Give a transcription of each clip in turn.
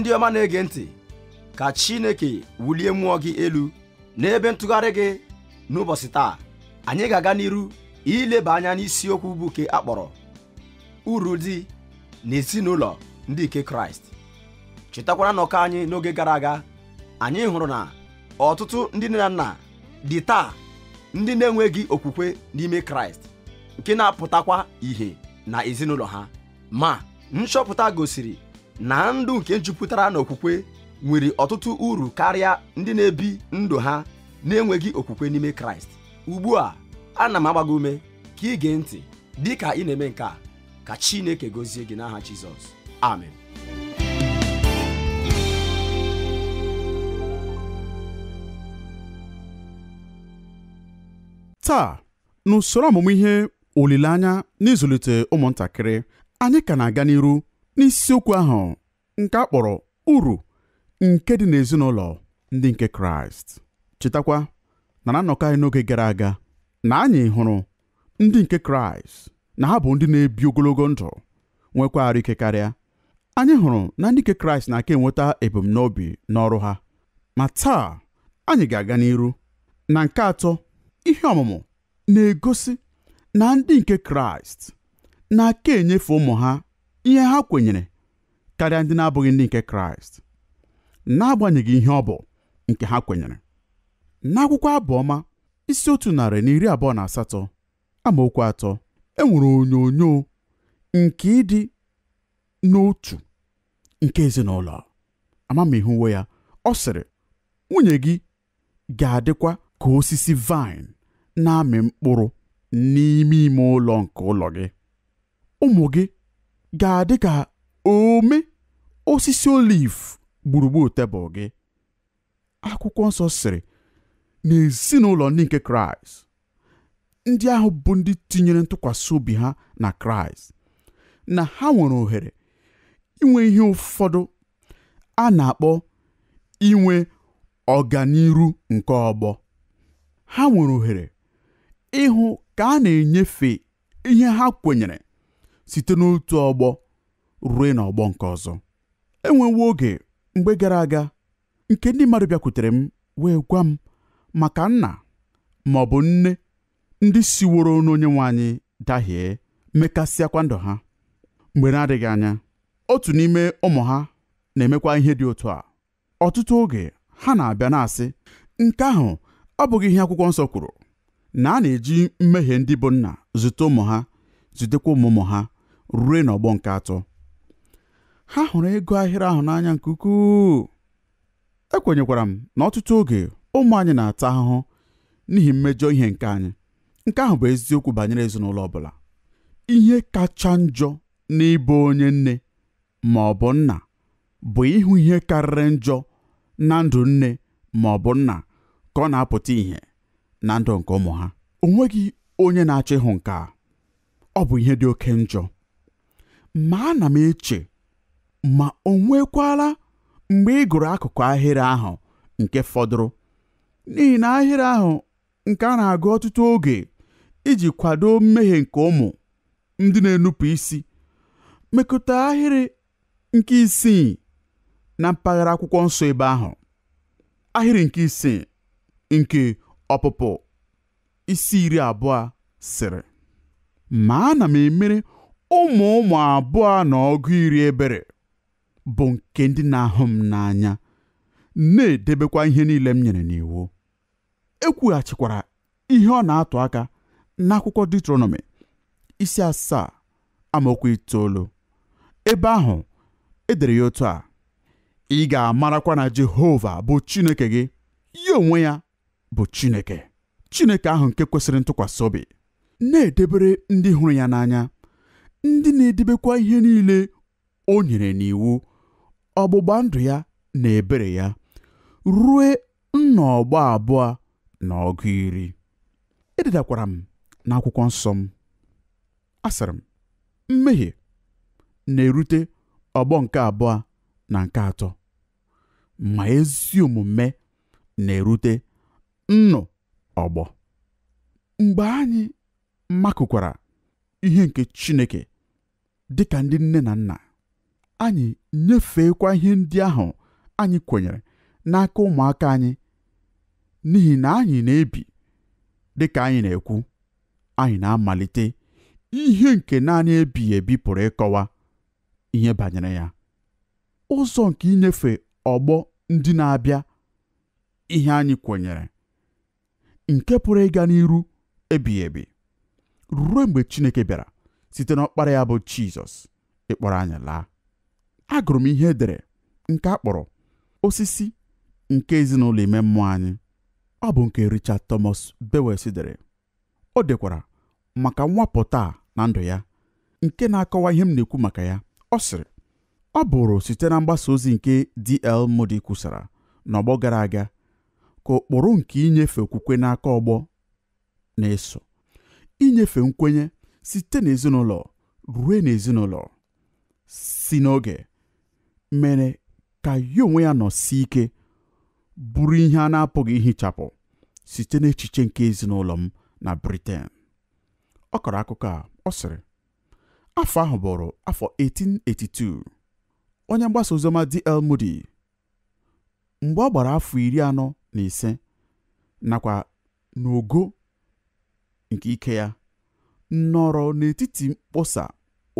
ndị ọma na-ege ntị ka Chineke wulie mmụọ gị elu n'ebe ntụgharị gị n'ụbọchị taa anyị ga-aga n'iru ileba anya n'isiokwu bụ nke akpọrọ uru dị na ezinụlọ ndị nke Kraịst chetakwara nnọkọ anyị n'oge gara aga anyị hụrụ na ọtụtụ ndị nne na nna dị taa ndị na-enweghị okwukwe n'ime Kraịst nke na-apụtakwa ìhè na ezinụlọ ha ma nchọpụta gosiri na ndụ nke jupụtara okwukwe nwere ọtụtụ uru karịa ndị na-ebi ndụ ha na-enweghị okwukwe n'ime kraịst ugbu a ana m agbago ume ka ị gee ntị dị ka ị na-eme nke a ka chineke gozie gị n'aha jizọs amen taa n'usoro ọmụmụ ihe olileanya n'ịzụlite ụmụntakịrị anyị ka na-aga n'iru n'isiokwu ahụ nke a kpọrọ uru nke dị n'ezinụlọ ndị nke kraịst chetakwa na na nnọkọ anyị n'oge gara aga na anyị hụrụ ndị nke kraịst na ha bụ ndị na-ebi ogologo ndụ nwekwa ike karịa anyị hụrụ na ndị nke kraịst na-aka enweta ebumnobi n'ọrụ ha ma taa anyị ga-aga n'iru na nke atọ ihe ọmụmụ na-egosi na ndị nke kraịst na-aka enyefe ụmụ ha ihe ha kwenyere karịa ndị na-abụghị ndị nke kraịst n'agbanyeghị ihe ọ bụ nke ha kwenyere n'akwụkwọ abụọma isi otu narị na iri abụọ na asatọ amaokwu atọ enwere onyonyo nke ịdị n'otu nke ezinụlọ amamihe uwe ya ọ sịrị nwunye gị ga-adịkwa ka osisi vaịn na-amị mkpụrụ n'ime ime ụlọ nke ụlọ gị ụmụ gị ga-adị ka ome osisi oliv gburugburu tebụl gị akwụkwọ nsọ sịrị n'ezinụlọ ndị nke kraịst ndị ahụ bụ ndị tinyere ntụkwasị obi ha na kraịst na ha nwere ohere inwe ihe ụfọdụ a na-akpọ inwe ọganiru nke ọgbọ ha nwere ohere ịhụ ka a na-enyefe ihe ha kwenyere site n'otu ọgbọ ruo n'ọgbọ nke ọzọ enwewo oge mgbe gara aga nke ndị mmadụ bịakwutere m wee gwa m maka nna ma ọ bụ nne ndị siworo n'onye nwe anyị dahie mekasịakwa ndụ ha mgbe na-adịghị anya otu n'ime ụmụ ha na-emekwa ihe dị otu a ọtụtụ oge ha na-abịa na-asị nke ahụ ọ bụghị ihe akwụkwọ nsọ kwuru na a na-eji mmehie ndị bụ nna zute ụmụ ha zutekwa ụmụ ụmụ ha rue n'ọgbọ nke atọ ha hụrụ ego ahịrị ahụ n'anya nke ukwuu ekwenyekwara m na ọtụtụ oge ụmụ anyị na-ata ahụhụ n'ihi mmejọ ihe nke anyị nke ahụ bụ eziokwu banyere ezinụlọ ọbụla ihe kacha njọ n'ịbụ onye nne ma ọ bụ nna bụ ịhụ ihe karịrị njọ na ndụ nne ma ọ bụ nna ka ọ na-apụta ìhè na ndụ nke ụmụ ha o nweghị onye na-achọ ịhụ nke a ọ bụ ihe dị oke njọ ma ana m eche ma o nwekwala mgbe ị gụrụ akụkụ ahịrị ahụ nke fọdụrụ n'ihi na ahịrị ahụ nke a na-agụ ọtụtụ oge iji kwado mmehie nke ụmụ ndị na-enupụ isi mekọta ahịrị nke isii na mpaghara akwụkwọ nsọ ebe ahụ ahịrị nke isii nke ọpụpụ isi iri abụọ sịrị ma ana m emere ụmụ ụmụ abụọ na ọgụ iri ebere bụ nke ndị na-ahụ m n'anya na-edebekwa ihe niile m nyere n'iwu e kwughachikwara ihe ọ na-atụ aka n'akwụkwọ Deuteronomy isi asaa amaokwu itoolu ebe ahụ edere ya otu a ị ga-amarakwa na Jehova bụ Chineke gị ya onwe ya bụ Chineke Chineke ahụ nke kwesịrị ntụkwasị obi na-edebere ndị hụrụ ya n'anya ndị na-edebekwa ihe niile o nyere n'iwu ọgbụgba ndụ ya na ebere ya rue nnọọgbọ abụọ na ọgụ iri ededakwara m na akwụkwọ nsọ m asịrị m mmehie na-erute ọgbọ nke abụọ na nke atọ ma ezi omume na-erute nnụ ọgbọ mgbe anyị makụkwara ihe nke Chineke dị ka ndị nne na nna anyị nyefeekwa ihe ndị ahụ anyị kwenyere n'aka ụmụaka anyị n'ihi na anyị na-ebi dị ka anyị na-ekwu anyị na-amalite ihe nke naanị ebighị ebi pụrụ ịkọwa ihe banyere ya ụzọ nke inyefe ọgbọ ndị na-abịa ihe anyị kwenyere nke pụrụ ịga n'iru ebighị ebi ruo mgbe Chineke bịara site n'ọkpara ya bụ Jizọs ịkpọrọ anya laa agụrụ m ihe e dere nke a osisi nke ezinụlọ ime mmụọ anyị ọ bụ nke Richard Thomas Bewes dere o dekwara maka nwapụta na ndụ ya nke na-akọwa ihe m na-ekwu maka ya ọ sịrị ọ bụrụ site na mgbasa ozi nke D.L. Moody kwusara n'ọgbọ gara aga ka ụkpụrụ nke inyefe okwukwe n'aka ọgbọ na-eso inyefe nkwenye site n'ezinụlọ ruo n'ezinụlọ si n'oge mere ka ya onwe ya nọsie ike bụrụ ihe a na-apụghị ihichapụ site n'echiche nke ezinụlọ m na Britain ọ kọrọ akụkọ a ọ sịrị afọ ahụ bụrụ afọ 1882 onye mgbasa ozioma D.L. Moody mgbe ọ gbara afọ iri anọ na ise nakwa n'ogo nke ike ya nọrọ n'etiti mkpọsa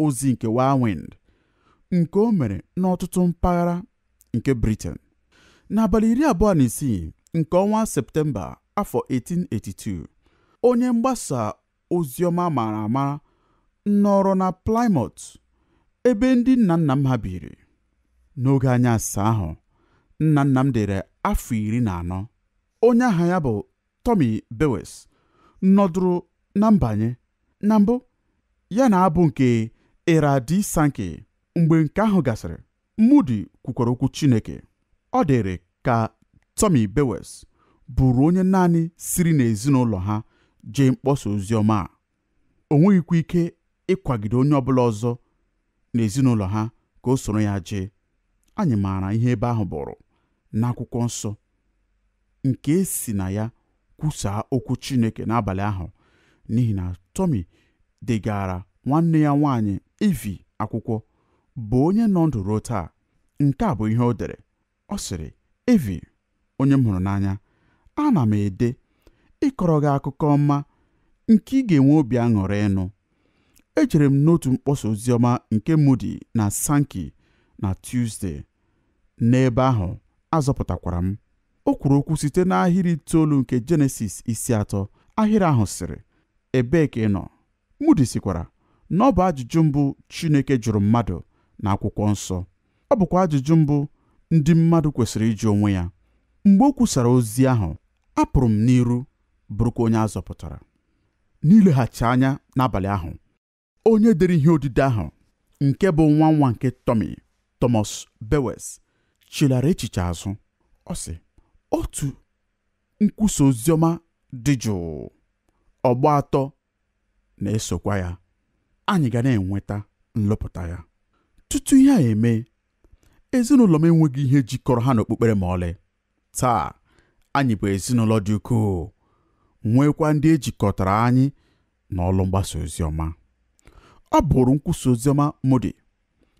ozi nke wind, nke o mere n'ọtụtụ mpaghara nke Britain n'abalị iri abụọ na isii nke ọnwa Septemba afọ 1882 onye mgbasa ozioma mara ama nọrọ na Plymouth ebe ndị nna nna m ha biri n'oge anya asaa ahụ nna nna m dere afọ iri na anọ onye aha ya bụ Tommy Bewes nọdụrụ na mbanye na mbụ ya na abụ nke eradi sanke mgbe nke ahụ gasịrị Moody kwukwara okwu Chineke ọ dịrị ka Tommy Bewes bụrụ onye naanị siri n'ezinụlọ ha jee mkpọsa ozi a o nweghịkwa ike ịkwagide onye ọbụla ọzọ n'ezinụlọ ha ka o soro ya jee anyị maara ihe ebe ahụ bụrụ n'akwụkwọ nsọ nke si na ya kwusaa okwu Chineke n'abalị ahụ n'ihi na Tommy degara nwanne ya nwanyị Ivi akwụkwọ bụ onye nọ ndụ ruo taa nke a bụ ihe o dere ọ sịrị Ivi onye m hụrụ n'anya ana m ede ịkọrọ gị akụkọ ọma nke ị ga-enwe obi aṅụrị ịnụ ejere m n'otu mkpọsa oziọma nke Moody na sanki na Tuesday n'ebe ahụ azọpụtakwara m o kwuru okwu site n'ahịrị itoolu nke jenesis isi atọ ahịrị ahụ sịrị ebee ka ị nọ Mudi sikwara na ọ bụ ajụjụ mbụ Chineke jụrụ mmadụ na akwụkwọ nsọ ọ bụkwa ajụjụ mbụ ndị mmadụ kwesịrị ịjụ onwe ya mgbe o kwusara ozi ahụ apụrụ m n'iru bụrụkwa onye azọpụtara n'ileghachi anya n'abalị ahụ onye dere ihe odide ahụ nke bụ nwa nwa nke Tommy Thomas Bewes chilara echiche azụ ọ sị otu nkwusa oziọma dị jụụ ọgba atọ na-esokwa ya anyị ga na-enweta nlọpụta ya tutu ihe a eme ezinụlọ m enweghị ihe jikọrọ ha n'okpukpere ma ọlị taa anyị bụ ezinụlọ dị ukwuu nwekwa ndị ejikọtara anyị na ọlụ mgbasa oziọma ọ bụrụ nkwusa oziọma Modi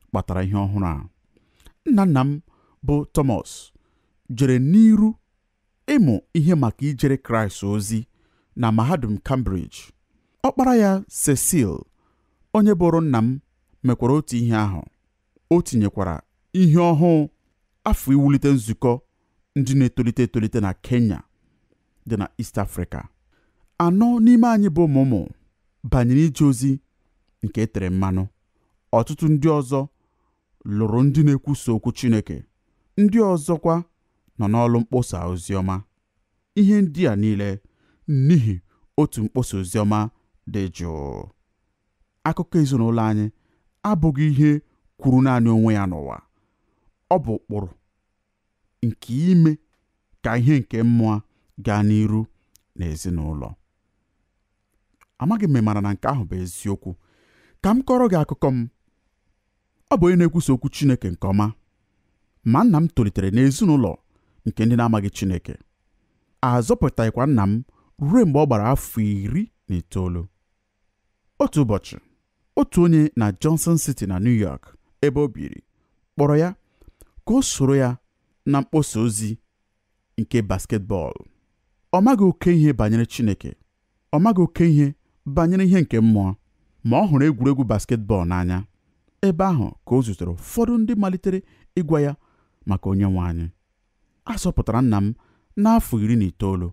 kpatara ihe ọhụrụ a nna nna m bụ tomas jere n'iru ịmụ ihe maka ijere Kraịst ozi na mahadum Cambridge ọkpara ya Cecil onye bụrụ nna m mekwara otu ihe ahụ o tinyekwara ihe ọhụụ afọ iwulite nzukọ ndị na-etolite etolite na Kenya dị na East Africa anọ n'ime anyị bụ ụmụmụ banyere ije ozi nke e tere mmanụ ọtụtụ ndị ọzọ lụrụ ndị na-ekwusa okwu Chineke ndị ọzọkwa nọ n'ọlụ mkpọsa oziọma ihe ndị a niile n'ihi otu mkpọsa oziọma dị jụụ akụkọ ezinụlọ anyị abụghị ihe kwuru naanị onwe ya n'ụwa ọ bụ ụkpụrụ nke ime ka ihe nke mmụọ gaa n'iru n'ezinụlọ. amaghị m mara na nke ahụ bụ eziokwu ka m kọrọ gị akụkọ m ọ bụ onye na-ekwusa okwu Chineke nke ọma ma nna m tolitere n'ezinụlọ nke ndị na-amaghị Chineke a zọpụtaghịkwa nna m ruo mgbe ọ gbara afọ iri na itoolu otu ụbọchị otu onye na Johnson City na New York ebe o biri kpọrọ ya ka o soro ya na mkpọsa ozi nke basketbọọlụ ọ maghị oke ihe banyere Chineke ọ maghị oke ihe banyere ihe nke mmụọ ma ọ hụrụ egwuregwu basketbọọlụ n'anya ebe ahụ ka o zutere ụfọdụ ndị malitere ịgwa ya maka onye nwe anyị a sọpụtara nna m n'afọ iri na itoolu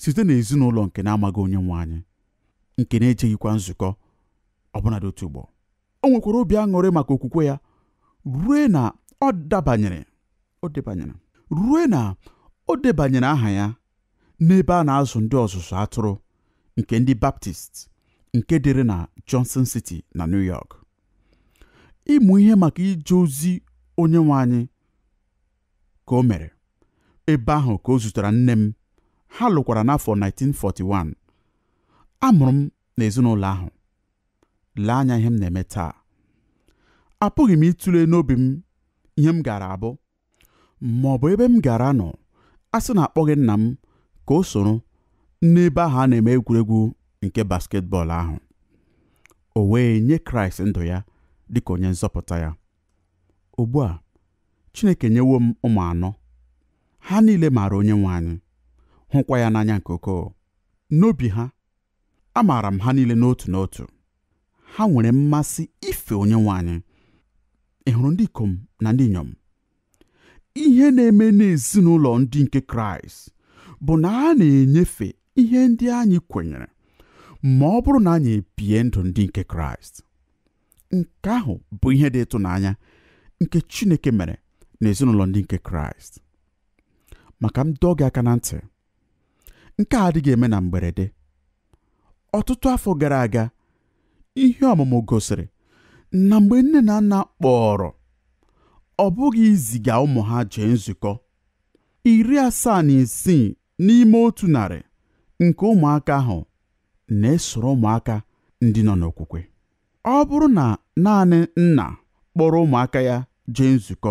site n'ezinụlọ nke na-amaghị onye nwe anyị nke na-ejeghịkwa nzukọ ọbụnadị otu ugbo o nwekwara obi aṅụrị maka okwukwe ya rue na ọ dabanyere o debanyere aha ya n'ebe a na-azụ ndị ọzụzụ atụrụ nke ndị baptist nke dịrị na johnson city na new york ịmụ ihe maka ije ozi onye nwe anyị ka o mere ebe ahụ ka o zutere nne m ha lụkwara n'afọ 1941 amụrụ m n'ezinụlọ ahụ lee anya ihe m na-eme taa apụghị m ịtụle n'obi m ihe m gara abụ ma ọ bụ ebe m gara nọ a sị na akpọghị nna m ka o soro n'ebe ahụ a na-eme egwuregwu nke basketbọọlụ ahụ o wee nye kraịst ndụ ya dịka onye nzọpụta ya ugbu a chineke nyewo m ụmụ anọ ha niile maara onye nwe anyị hụkwa ya n'anya nke oko. n'obi ha amaara m ha niile n'otu n'otu ha nwere mmasị ife onye nwe anyị ị ndị ikom na ndị inyom ihe na-eme n'ezinụlọ ndị nke kraịst bụ na a na-enyefe ihe ndị anyị kwenyere ma ọ bụrụ na anyị ebie ndụ ndị nke kraịst nke ahụ bụ ihe dị ịtụnanya nke chineke mere n'ezinụlọ ndị nke kraịst maka m dọọ gị aka na ntị nke a adịghị eme na mgberede ọtụtụ afọ gara aga ihe ọmụmụ gosiri na mgbe nne na nna kpọrọ ọ bụghị iziga ụmụ ha jee nzukọ iri asaa na isii n'ime otu narị nke ụmụaka ahụ na-esoro ụmụaka ndị nọ n'okwukwe ọ bụrụ na naanị nna kpọrọ ụmụaka ya jee nzukọ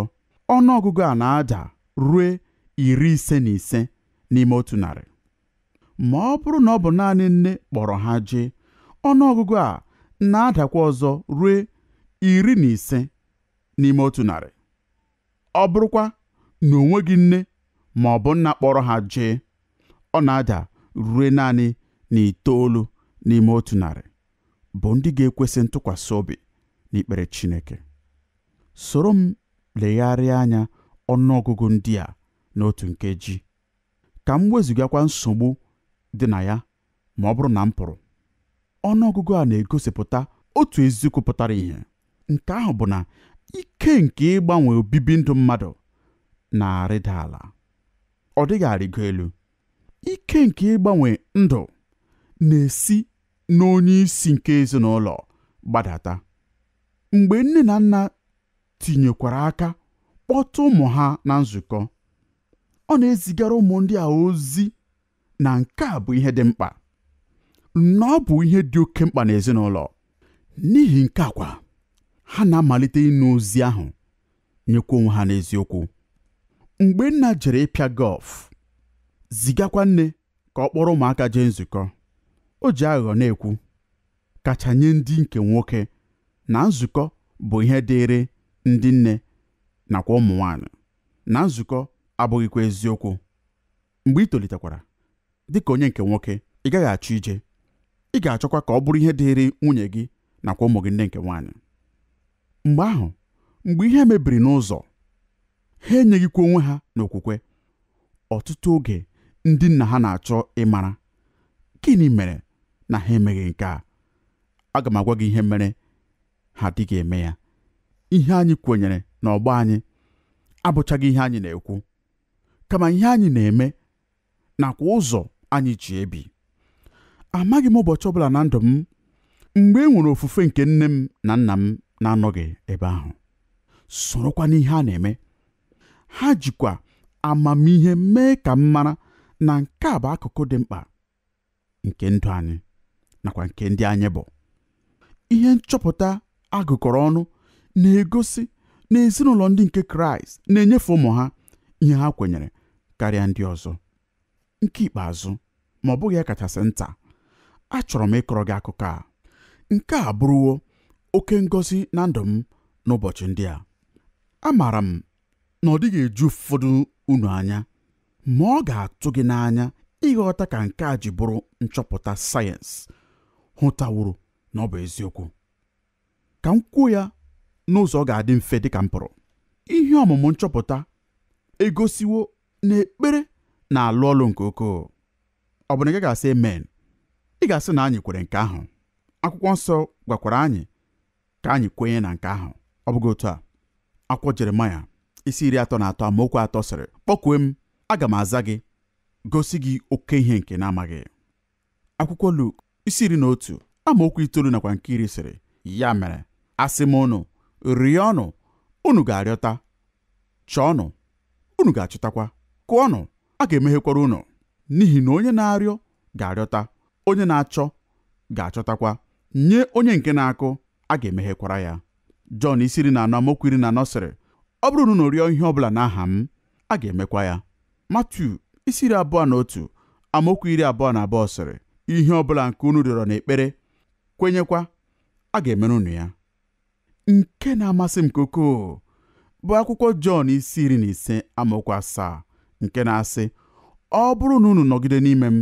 ọnụ ọgụgụ a na-ada rue iri ise na ise n'ime otu narị ma ọ bụrụ na ọ bụ naanị nne kpọrọ ha jee ọnụọgụgụ a na-adakwa ọzọ ruo iri na ise n'ime otu narị ọ bụrụkwa na onwe gị nne ma ọ bụ nna kpọrọ ha jee ọ na-ada rue naanị na itoolu n'ime otu narị bụ ndị ga-ekwesị ntụkwasị obi n'ikpere Chineke soro m legharịa anya ọnụọgụgụ ndị a n'otu otu nkeji ka m wezụgakwa nsogbu dị na ya ma ọ bụrụ na m pụrụ ọgụgụ a na-egosipụta otu eziokwu pụtara ihe. nke ahụ bụ na ike nke ịgbanwe obibi ndụ mmadụ na-arịda ala ọ dịghị arịgo elu ike nke ịgbanwe ndụ na-esi n'onye isi nke ezinụlọ gbadata mgbe nne na nna tinyekwara aka kpọta ụmụ ha na nzukọ ọ na-ezigara ụmụ ndị a ozi na nke a bụ ihe dị mkpa na ọ bụ ihe dị oke mkpa n'ezinụlọ n'ihi nke akwa ha na-amalite ịnụ ozi ahụ nyekwa onwe ha n'eziokwu mgbe nna jere ịpịa gọlf zigakwa nne ka ọ kpọrọ ụmụaka jee nzukọ o ji aghụghọ na-ekwu kacha nye ndị nke nwoke na nzukọ bụ ihe dịịrị ndị nne nakwa ụmụ nwanyị na nzukọ abụghịkwa eziokwu mgbe ị tolitekwara dị ka onye nke nwoke ị gaghị achọ ije ị ga-achọkwa ka ọ bụrụ ihe dịịrị nwunye gị nakwa ụmụ gị nne nke nwaanyị mgbe ahụ mgbe ihe mebiri n'ụzọ ha enyeghịkwa onwe ha n'okwukwe ọtụtụ oge ndị nna ha na-achọ ịmara gịnị mere na ha emeghị nke a aga m agwa gị ihe mere ha dịghị eme ya ihe anyị kwenyere ọgbọ anyị abụchaghị ihe anyị na-ekwu kama ihe anyị na-eme nakwa ụzọ anyị ji ebi amaghị m ụbọchị ọbụla na ndụ m mgbe e nwere ofufe nke nne m na nna m na-anọghị ebe ahụ sorokwa n'ihe a na-eme ha jikwa amamihe mee ka m mara na nke a bụ akụkụ dị mkpa nke ndụ anyị nakwa nke ndị anyị bụ ihe nchọpụta agụkọrọ ọnụ na-egosi na ezinụlọ ndị nke kraịst na-enyefe ụmụ ha ihe ha kwenyere karịa ndị ọzọ nke ikpeazụ ma ọ bụghị ya e kachasị nta achọrọ m ịkọrọ gị akụkọ a nke a bụrụwo oke ngosi na ndụ m n'ụbọchị ndị a amaara m na ọ dịghị eju ụfọdụ unu anya ma ọ ga-atụ gị n'anya ịghọta ka nke a ji bụrụ nchọpụta sayensị hụtawuru na ọ bụ eziokwu ka m kwuo ya n'ụzọ ọ ga-adị mfe dịka m pụrụ ihe ọmụmụ nchọpụta egosiwo na ekpere na-alụ ọlụ nke ukwuu ọ bụ na gị ga-asị amen ị ga-asị na anyị kwere nke ahụ akwụkwọ nsọ gwakwara anyị ka anyị kwenye na nke ahụ ọ bụghị otu a akwụkwọ jeremaya isi iri atọ na atọ amaokwu atọ sịrị kpọkwue m aga m aza gị gosi gị oke ihe nke na-amaghị akwụkwọ luk isi iri na otu amaokwu itoolu nakwa nke iri sịrị ya mere asị m ụnụ ọnụ unu ga-arịọta chọọnụ unu ga-achọtakwa kụọnụ a ga-emeghekwara unu n'ihi na onye na-arịọ ga-arịọta onye na-achọ ga-achọtakwa nye onye nke na-akụ a ga-emeghekwara ya Jọn isi iri na anọ amaokwu iri na anọ sịrị ọ bụrụ na unu rịọ ihe na n'aha m a ga-emekwa ya Matiu isi iri abụọ na otu amaokwu iri abụọ na abụọ sịrị ihe ọbụla nke unu rịọrọ n'ekpere kwenyekwa a ga-emere unu ya nke na-amasị m koko bụ akwụkwọ Jọn isi iri na ise amaokwu asaa nke na-asị ọ bụrụ na unu nọgide n'ime m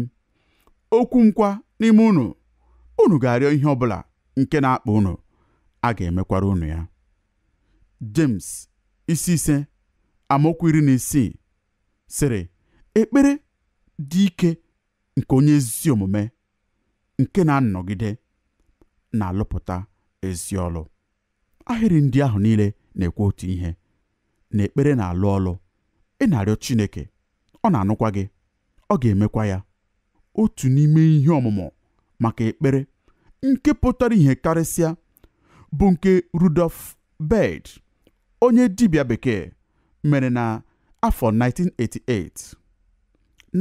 okwu m kwa n'ime unu unu ga-arịọ ihe ọ bụla nke na-akpa unu a ga-emekwara unu ya James isi ise amaokwu iri na isii sịrị ekpere dị ike nke onye ezi omume nke na-anọgide na-alụpụta ezi ọlụ ahịrị ndị ahụ niile na-ekwu otu ihe na ekpere na-alụ ọlụ ị na-arịọ Chineke ọ na-anụkwa gị ọ ga-emekwa ya otu n'ime ihe ọmụmụ maka ekpere nke pụtara ihe karịsịa bụ nke Rudolf bed onye dibia bekee mere na afọ 1988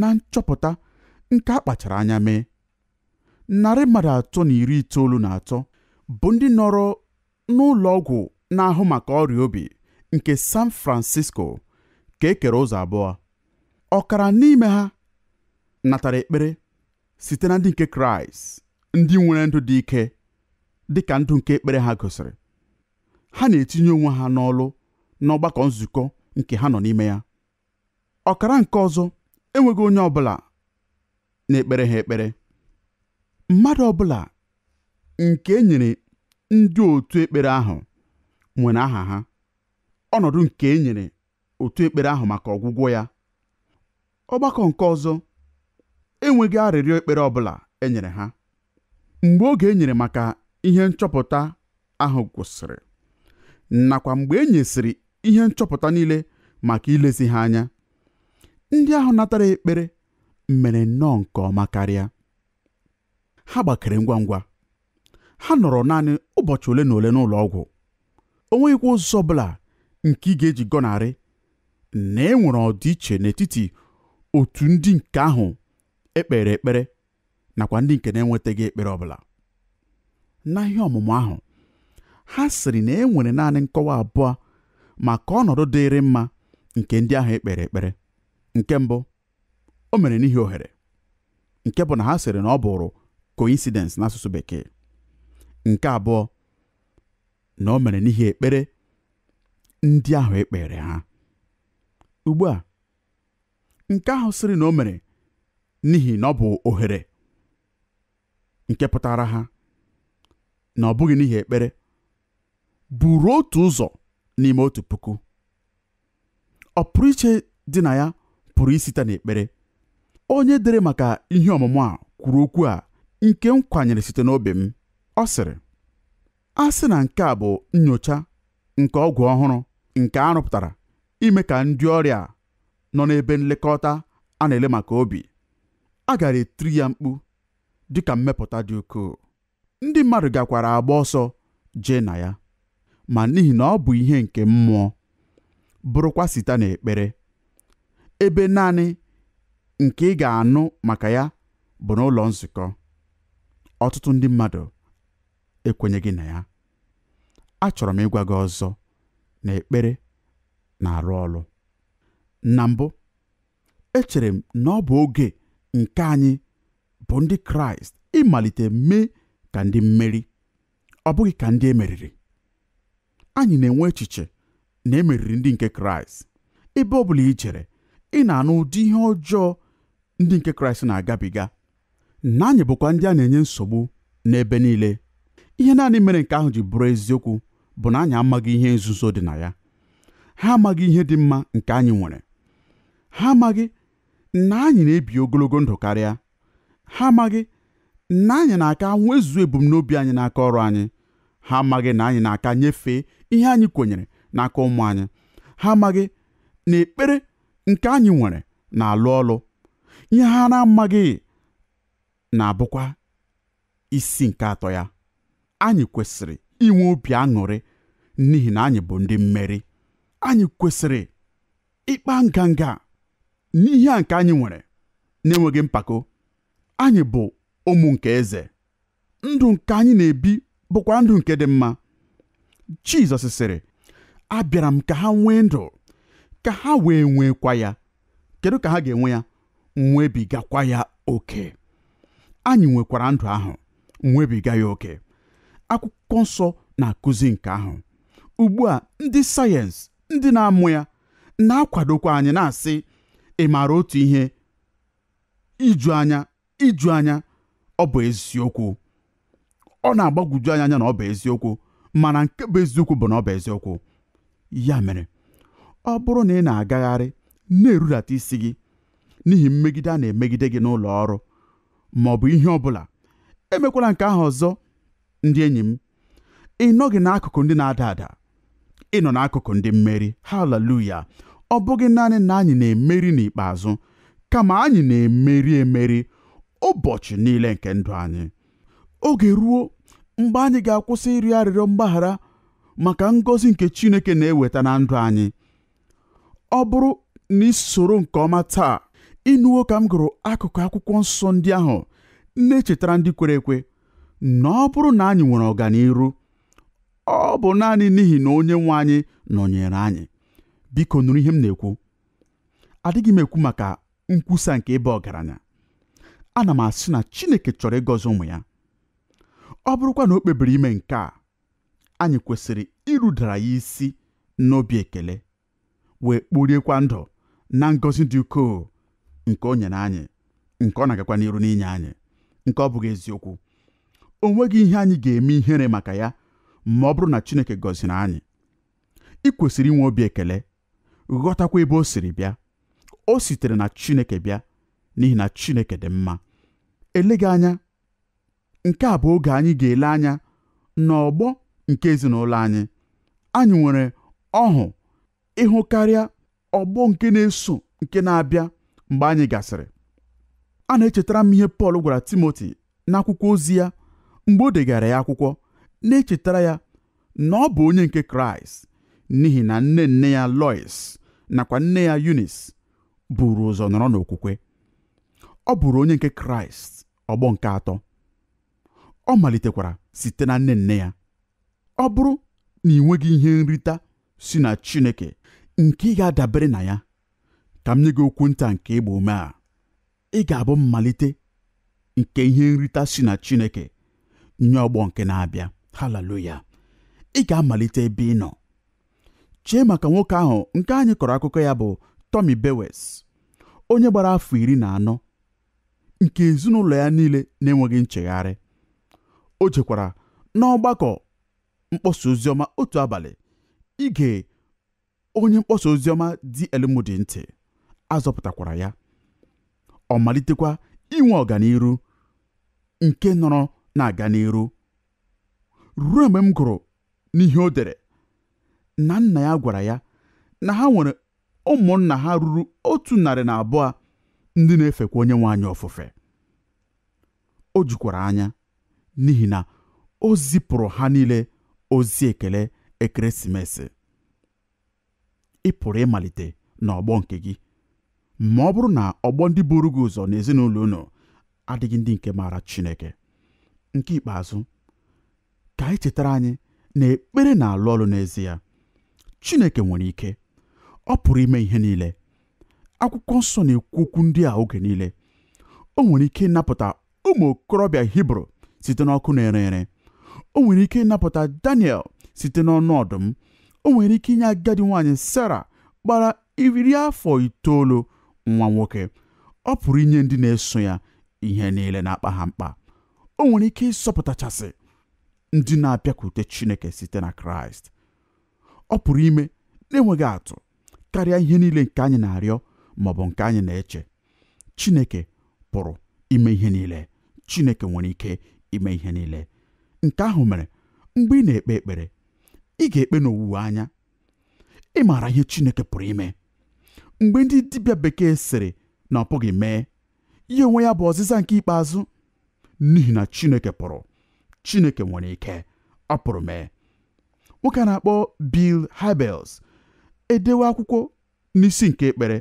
na nchọpụta nke a kpachara anya mee narị mmadụ atọ na iri itoolu na atọ bụ ndị nọrọ n'ụlọ ọgwụ na-ahụ maka ọrịa obi nke San Francisco ka e kere ụzọ abụọ ọkara n'ime ha natara ekpere site na ndị nke kraịst ndị nwere ndụ dị ike dị ka ndụ nke ekpere ha gosiri ha na-etinye onwe ha n'ọlụ n'ọgbakọ nzukọ nke ha nọ n'ime ya ọkara nke ọzọ enweghị onye ọ bụla na-ekpere ha ekpere mmadụ ọbụla nke e ndị otu ekpere ahụ nwere aha ha ọnọdụ nke e otu ekpere ahụ maka ọgwụgwọ ya ọgbakọ nke ọzọ enweghị arịrịọ ekpere ọbụla e nyere ha mgbe oge e nyere maka ihe nchọpụta ahụ gwụsịrị nakwa mgbe e nyesịrị ihe nchọpụta niile maka ilezi ha anya ndị ahụ natara ekpere mere nnọọ nke ọma karịa ha gbakere ngwa ngwa ha nọrọ naanị ụbọchị ole na ole n'ụlọ ọgwụ o nweghịkwa ụzọ ọ bụla nke ị ga-eji gọnarị na e nwere ọdịiche n'etiti otu ndị nke ahụ ekpere ekpere nakwa ndị nke na-enwetaghị ekpere ọbụla N'ahịa ọmụmụ ahụ ha sịrị na e nwere naanị nkọwa abụọ maka ọnọdụ dịịrị mma nke ndị ahụ ekpere ekpere nke mbụ o mere n'ihi ohere nke bụ na ha sịrị na ọ bụrụ coincidence n'asụsụ bekee nke abụọ na o mere n'ihi ekpere ndị ahụ ekpere ha ugbu a nke ahụ sịrị na o mere n'ihi na ọ bụ ohere nke pụtara ha na ọ bụghị n'ihi ekpere buru otu ụzọ n'ime otu puku Ọ pụrụ iche dị na ya pụrụ isite n'ekpere onye dere maka ihe ọmụmụ a kwuru okwu a nke m kwanyere site n'obi m ọ sịrị a sị na nke a bụ nyocha nke ọgwụ ọhụrụ nke a rụpụtara ime ka ndị ọrịa nọ n'ebe nlekọta a na-ele maka obi a gara etiri ya mkpu dịka mmepụta dị ukwuu ndị mmadụ gakwara agba ọsọ jee na ya ma n'ihi na ọ bụ ihe nke mmụọ bụrụkwa site ekpere ebe naanị nke ị ga-anụ maka ya bụ n'ụlọ nzukọ ọtụtụ ndị mmadụ ekwenyeghị na ya achọrọ m ịgwa gị ọzọ na ekpere na-arụ ọrụ na mbụ echere m na ọ bụ oge nke anyị bụ ndị kraịst ịmalite mee ka ndị mmeri ọ bụghị ka ndị emeriri anyị na-enwe echiche na emeriri ndị nke kraịst ebe ọ bụla ị jere ị na-anụ ụdị ihe ọjọọ ndị nke kraịst na-agabiga na anyị bụkwa ndị a na-enye nsogbu n'ebe niile ihe naanị mere nke ahụ ji bụrụ eziokwu bụ na anyị amaghị ihe nzuzo dị na ya ha amaghị ihe dị mma nke anyị nwere ha amaghị na anyị na-ebi ogologo ndụ karịa ha amaghị na anyị na-aka nwezu ebumnobi anyị n'aka ọrụ anyị ha amaghị na anyị na-aka nyefee ihe anyị kwenyere n'aka ụmụ anyị ha amaghị na ekpere nke anyị nwere na-alụ ọlụ ihe ha na-amaghị na-abụkwa isi nke atọ ya anyị kwesịrị inwe obi aṅụrị n'ihi na anyị bụ ndị mmeri anyị kwesịrị ịkpa nganga n'ihe a nke anyị nwere na-enweghị mpako anyị bụ ụmụ nke eze ndụ nke anyị na-ebi bụkwa ndụ nke dị mma Jizọs sịrị abịara m ka ha nwee ndụ ka ha wee nwekwa ya kedu ka ha ga-enwe ya nwebigakwa ya oke anyị nwekwara ndụ ahụ nwebiga ya oke akwụkwọ nsọ na-akụzi nke ahụ ugbu a ndị sayensị ndị na-amụ ya na-akwadokwa anyị na-asị ị maara otu ihe iju anya iju anya ọ bụ eziokwu ọ na-agbagwoju anyị anya na ọ bụ eziokwu mana nke bụ eziokwu bụ na ọ bụ eziokwu ya mere ọ bụrụ na ị na-agagharị na-erudata isi gị n'ihi mmegide a na-emegide gị n'ụlọ ọrụ ma ọ bụ ihe ọ bụla emekwala nke ahụ ọzọ ndị enyi m ị nọghị n'akụkụ ndị na-ada ada ị nọ n'akụkụ ndị mmeri haleluya ọ bụghị naanị na anyị na-emeri n'ikpeazụ kama anyị na-emeri emeri ụbọchị niile nke ndụ anyị oge ruo mgbe anyị ga-akwụsị ịrị arịrịọ mgbaghara maka ngọzi nke Chineke na-eweta na ndụ anyị ọ bụrụ na isoro nke ọma taa ịnụwo ka m gụrụ akụkụ akwụkwọ nsọ ndị ahụ na-echetara ndị kwere ekwe na ọ bụrụ na anyị nwere ọganiru ọ bụ naanị n'ihi na onye nwe anyị nọnyere anyị biko nụrụ ihe m na-ekwu adịghị m ekwu maka nkwusa nke ịba ọgaranya ana m asị na Chineke chọrọ ịgọzi ụmụ ya ọ bụrụkwa na o kpebiri ime nke a anyị kwesịrị irudara ya isi n'obi ekele wee kporiekwa ndụ na ngọzi dị ukoo nke o nyere anyị nke ọ na-agakwa n'iru n'inye anyị nke ọ bụghị eziokwu o nweghị ihe anyị ga-eme ihere maka ya ma ọ bụrụ na Chineke gọziri anyị ị kwesịrị inwe obi ekele ghọtakwa ebe o siri bịa o sitere na Chineke bịa n'ihi na Chineke dị mma eleghị anya nke a bụ oge anyị ga-ele anya n'ọgbọ nke ezinụlọ anyị anyị nwere ọhụ ịhụ karịa ọgbọ nke na-eso nke na-abịa mgbe anyị gasịrị a na-echetara m ihe Pọl gwara Timoti n'akwụkwọ ozi ya mgbe o degara ya akwụkwọ na-echetara ya na ọ bụ onye nke kraịst n'ihi na nne nne ya lois nakwa nne ya yunis buru ụzọ nọrọ n'okwukwe ọ bụrụ onye nke kraịst ọgbọ nke atọ ọ malitekwara site na nne nne ya ọ bụrụ na ị nweghị ihe nrita si na chineke nke ị ga-adabere na ya ka m nye gị okwu nta nke ịgba ume a ị ga-abụ mmalite nke ihe nrita si na chineke nye ọgbọ nke na-abịa haleluya ị ga-amalite ebe ị nọ chee maka nwoke ahụ nke anyị kọrọ akụkọ ya bụ Tommy Bewes onye gbara afọ iri na anọ nke ezinụlọ ya niile na-enweghị nchegharị o jekwara n'ọgbakọ mkpọsa oziọma otu abalị ige onye mkpọsa oziọma dị ntị azọpụtakwara ya ọ malitekwa inwe ọganiru nke nọrọ na-aga n'iru ruo mgbe m gụrụ n'ihe o dere na nna ya gwara ya na ha nwere ụmụnna ha ruru otu narị na abụọ ndị na-efekwa onye anyị ofufe o jikwara anya n'ihi na o zipụrụ ha niile ozi ekele ekeresimesi ịpụrụ pụrụ ịmalite n'ọgbọ nke gị ma ọ bụrụ na ọgbọ ndị buru gị ụzọ n'ezinụlọ unu adịghị ndị nke maara Chineke nke ikpeazụ ka anyị e chetara anyị na ekpere na-alụ ọrụ n'ezie Chineke nwere ike ọ pụrụ ime ihe niile akwụkwọ nsọ na-ekwu okwu ndị a oge niile o nwere ike ịnapụta ụmụ okorobịa Hibru site n'ọkụ na-ere ere o nwere ike ịnapụta Daniel site n'ọnụ ọdụm o nwere ike inye agadi nwaanyị Sara gbara iri afọ itoolu nwa nwoke ọ pụrụ inye ndị na-eso ya ihe niile na-akpa ha mkpa o nwere ike ịsọpụtachasị ndị na-abịakwute Chineke site na Kraịst ọ pụrụ ime na-enweghị atụ karịa ihe niile nke anyị na-arịọ ma ọ bụ nke anyị na-eche Chineke pụrụ ime ihe niile Chineke nwere ike ime ihe niile nke ahụ mere mgbe ị na-ekpe ekpere ị ga-ekpe n'owuwe anya ị maara ihe Chineke pụrụ ime mgbe ndị dibịa bekee sịrị na ọ pụghị mee ihe onwe ya bụ ọzịza nke ikpeazụ n'ihi na Chineke pụrụ chineke nwere ike ọ pụrụ mee nwoke na-akpọ Bill Hybels edewe akwụkwọ n'isi nke ekpere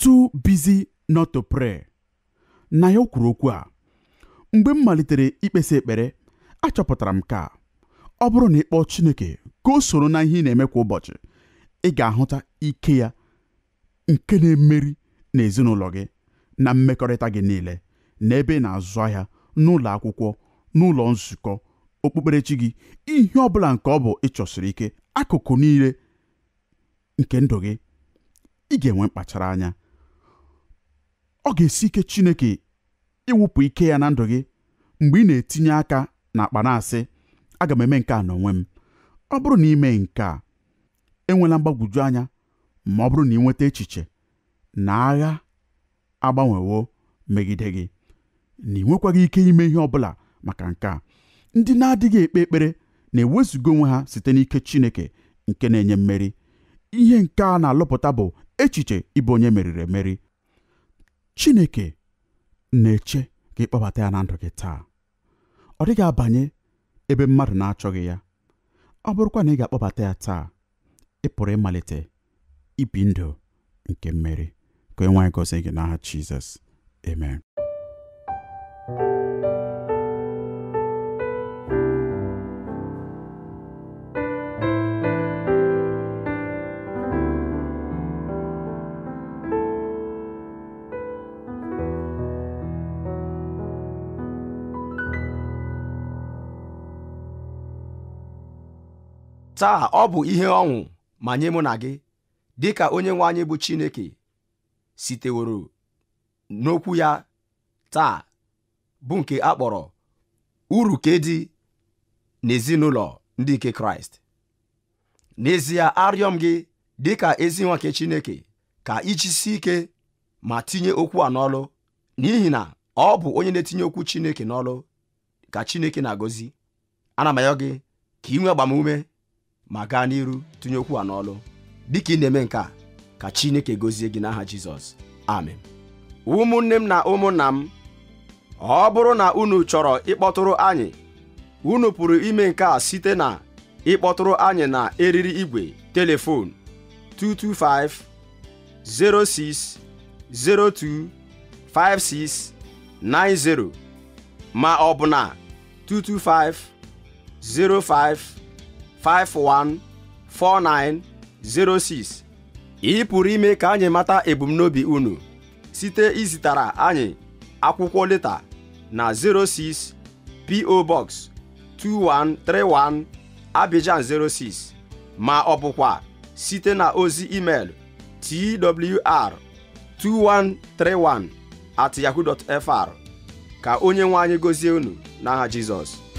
too busy not to pray na ya o kwuru okwu a mgbe m malitere ikpesa ekpere achọpụtara m ka ọ bụrụ na ịkpọ Chineke ka o soro na ihe ị na-eme kwa ụbọchị ị ga-ahụta ike ya nke na-emeri na gị na mmekọrịta gị niile na ebe ị na-azụ ahịa n'ụlọ akwụkwọ n'ụlọ nzukọ okpukperechi gị ihe ọ bụla nke ọ bụ ịchọsiri ike akụkụ niile nke ndụ gị ị ga-enwe mkpachara anya ọ ga-esi ike Chineke ịwụpụ ike ya na ndụ gị mgbe ị na-etinye aka na akpa na aga m eme nke a n'onwe m ọ bụrụ na ime nke a enwela mgbagwoju anya ma ọ bụrụ na ị nweta echiche na agha agbanwewo megide gị na ị nwekwaghị ike ime ihe ọ bụla maka nke a ndị na-adịghị ekpe ekpere na-ewezuga onwe ha site n'ike Chineke nke na-enye mmeri ihe nke a na-alụpụta bụ echiche ịbụ onye meriri emeri Chineke na-eche ka ịkpọbata ya na ndụ gị taa ọ dịghị abanye ebe mmadụ na-achọghị ya ọ bụrụkwa na ị ga-akpọbata ya taa ị pụrụ ịmalite ibi ndụ nke mmeri ka onye nwaanyị gị n'aha Jizọs amen taa ọ bụ ihe ọṅụ ma nye mụ na gị dị ka onye nwe anyị bụ Chineke siteworo n'okwu ya taa bụ nke a kpọrọ uru dị n'ezinụlọ ndị nke Kraịst n'ezie arịọ m gị dị ka ezi Chineke ka ijisi ike ma tinye okwu a n'ọlụ n'ihi na ọ bụ onye na-etinye okwu Chineke n'ọlụ ka Chineke na-agọzi ana m ayọ gị ka ị nwee agbamume ma gaa n'iru tụnye okwu a n'ọlụ dịka ị na-eme nke a ka Chineke gozie gị n'aha Jizọs amen ụmụnne m na ụmụnna m ọ bụrụ na unu chọrọ ịkpọtụrụ anyị unu pụrụ ime nke a site na ịkpọtụrụ anyị na eriri igwe telefon 225 06 02 56 90 ma ọ bụ na 225 05 514906 ị pụrụ ime ka anyị mata ebumnobi unu site izitara anyị akwụkwọ leta na 06 PO Box 2131 Abidjan 06 ma ọ bụkwa site na ozi email twr 2131 at yahoo.fr ka onye nwe anyị gozie unu n'aha Jizọs